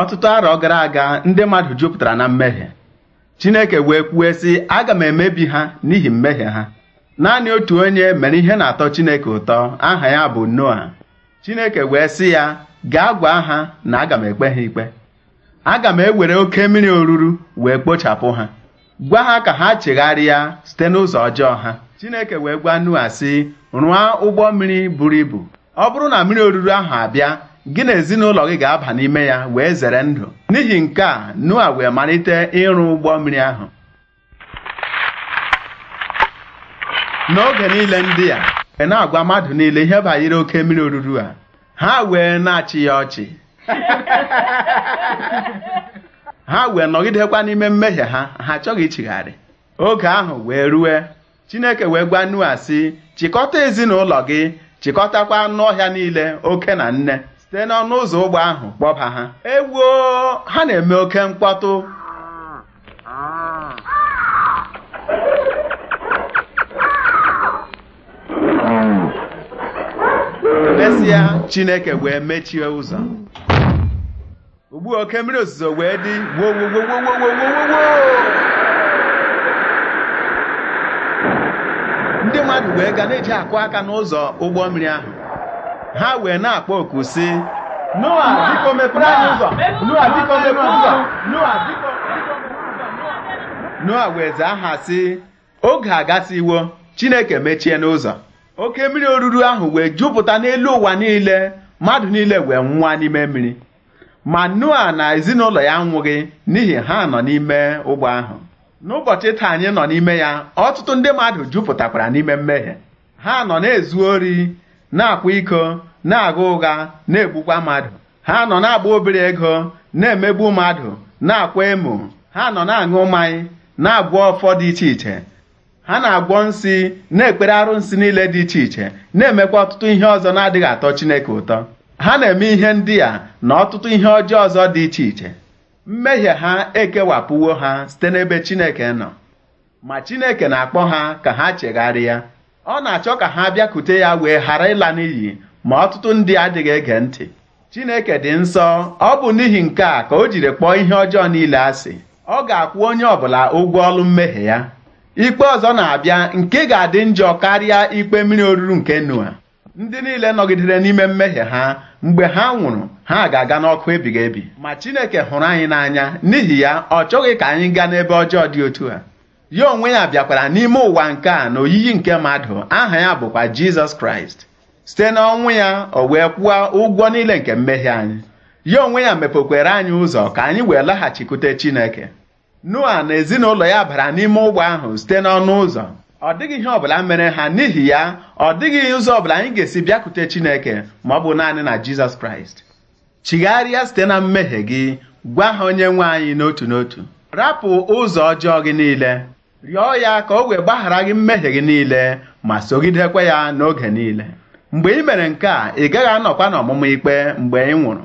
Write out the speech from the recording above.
ọtụtụ arọ gara aga ndị mmadụ jupụtara na mmehie Chineke wee kwuo sị aga m emebi ha n'ihi mmehie ha naanị otu onye mere ihe na-atọ Chineke ụtọ aha ya bụ Noa Chineke wee sị ya gaa gwa ha na aga m ekpe ha ikpe aga m ewere oke mmiri oruru wee kpochapụ ha gwa ha ka ha chegharịa site n'ụzọ ọjọọ ha Chineke wee gwa Noa sị rụọ ụgbọ mmiri buru ibu ọ bụrụ na mmiri oruru ahụ abịa gị na ezinụlọ gị ga-aba n'ime ya wee zere ndụ n'ihi nke a Noa wee malite ịrụ ụgbọ mmiri ahụ n'oge niile ndị a wee na-agwa mmadụ niile ihe banyere oke mmiri oruru a ha wee na-achị ya ọchị ha wee nọgidekwa n'ime mmehie ha ha achọghị ichigharị oge ahụ wee rue Chineke wee gwa Noa sị chịkọta ezinụlọ gị chịkọtakwa anụ ọhịa niile oke na nne site n'ọnụ ụzọ ụgbọ ahụ kpọba ha ewuo ha na-eme oke mkpọtụ mesịa chineke wee mechie ụzọ ugbu oke mmiri ozuzo wee dị gwogwogwogwogwogwogwogwo ndị mmadụ wee ga na-eji akụ aka n'ụzọ ụgbọ mmiri ahụ ha wee na-akpọ oku si noa noa noa wee zaa ha si oge agasiwo chineke mechie n'ụzọ oke mmiri oruru ahụ wee jupụta n'elu ụwa niile mmadụ niile wee nwụwa n'ime mmiri ma noa na ezinụlọ ya nwụghị n'ihi ha nọ n'ime ụgbọ ahụ n'ụbọchị taa anyị nọ n'ime ya ọtụtụ ndị mmadụ jupụtakwara n'ime mmehie ha nọ na-ezu ori na-akwa iko na aga ụgha na-egbukwa mmadụ ha nọ na-agba obere ego na-emegbu mmadụ na-akwa emo ha nọ na-aṅụ mmanya na-agwọ ọfọ dị iche iche ha na-agwọ nsị na-ekpere arụnsị niile dị iche iche na-emekwa ọtụtụ ihe ọzọ na-adịghị atọ Chineke ụtọ ha na-eme ihe ndị a na ọtụtụ ihe ọjọọ ọzọ dị iche iche mmehie ha ekewapụwo ha site n'ebe Chineke nọ ma Chineke na-akpọ ha ka ha chegharịa ọ na-achọ ka ha bịakute ya wee ghara ịla n'iyi ma ọtụtụ ndị adịghị ege ntị Chineke dị nsọ ọ bụ n'ihi nke a ka o jiri kpọọ ihe ọjọọ niile asị ọ ga-akwụ onye ọbụla ụgwọ ọlụ mmehie ya ikpe ọzọ na-abịa nke ga-adị njọ karịa ikpe mmiri oruru nke nua ndị niile nọgidere n'ime mmehie ha mgbe ha nwụrụ ha ga-aga n'ọkụ ebighị ebi ma Chineke hụrụ anyị n'anya n'ihi ya ọ chọghị ka anyị gaa n'ebe ọjọọ dị otu a ya onwe ya bịakwara n'ime ụwa nke a na oyiyi nke mmadụ aha ya bụkwa Jizọs Kraịst site n'ọnwụ ya o wee kwụọ ụgwọ niile nke mmehie anyị ya onwe ya mepekwere anyị ụzọ ka anyị wee laghachikwute Chineke Noa na ezinụlọ ya bara n'ime ụgbọ ahụ site n'ọnụ ụzọ ọ dịghị ihe ọbụla mere ha n'ihi ya ọ dịghị ụzọ ọbụla anyị ga-esi bịakwute Chineke ma ọ bụ naanị na Jizọs Kraịst chigharịa site na mmehie gị gwa ha onye nwe anyị n'otu n'otu rapụ ụzọ ọjọọ gị niile rịọ ya ka o wee gbaghara gị mmehie gị niile ma sogidekwe ya n'oge niile mgbe ị mere nke a ị gaghị anọkwa n'ọmụmụ ikpe mgbe ị nwụrụ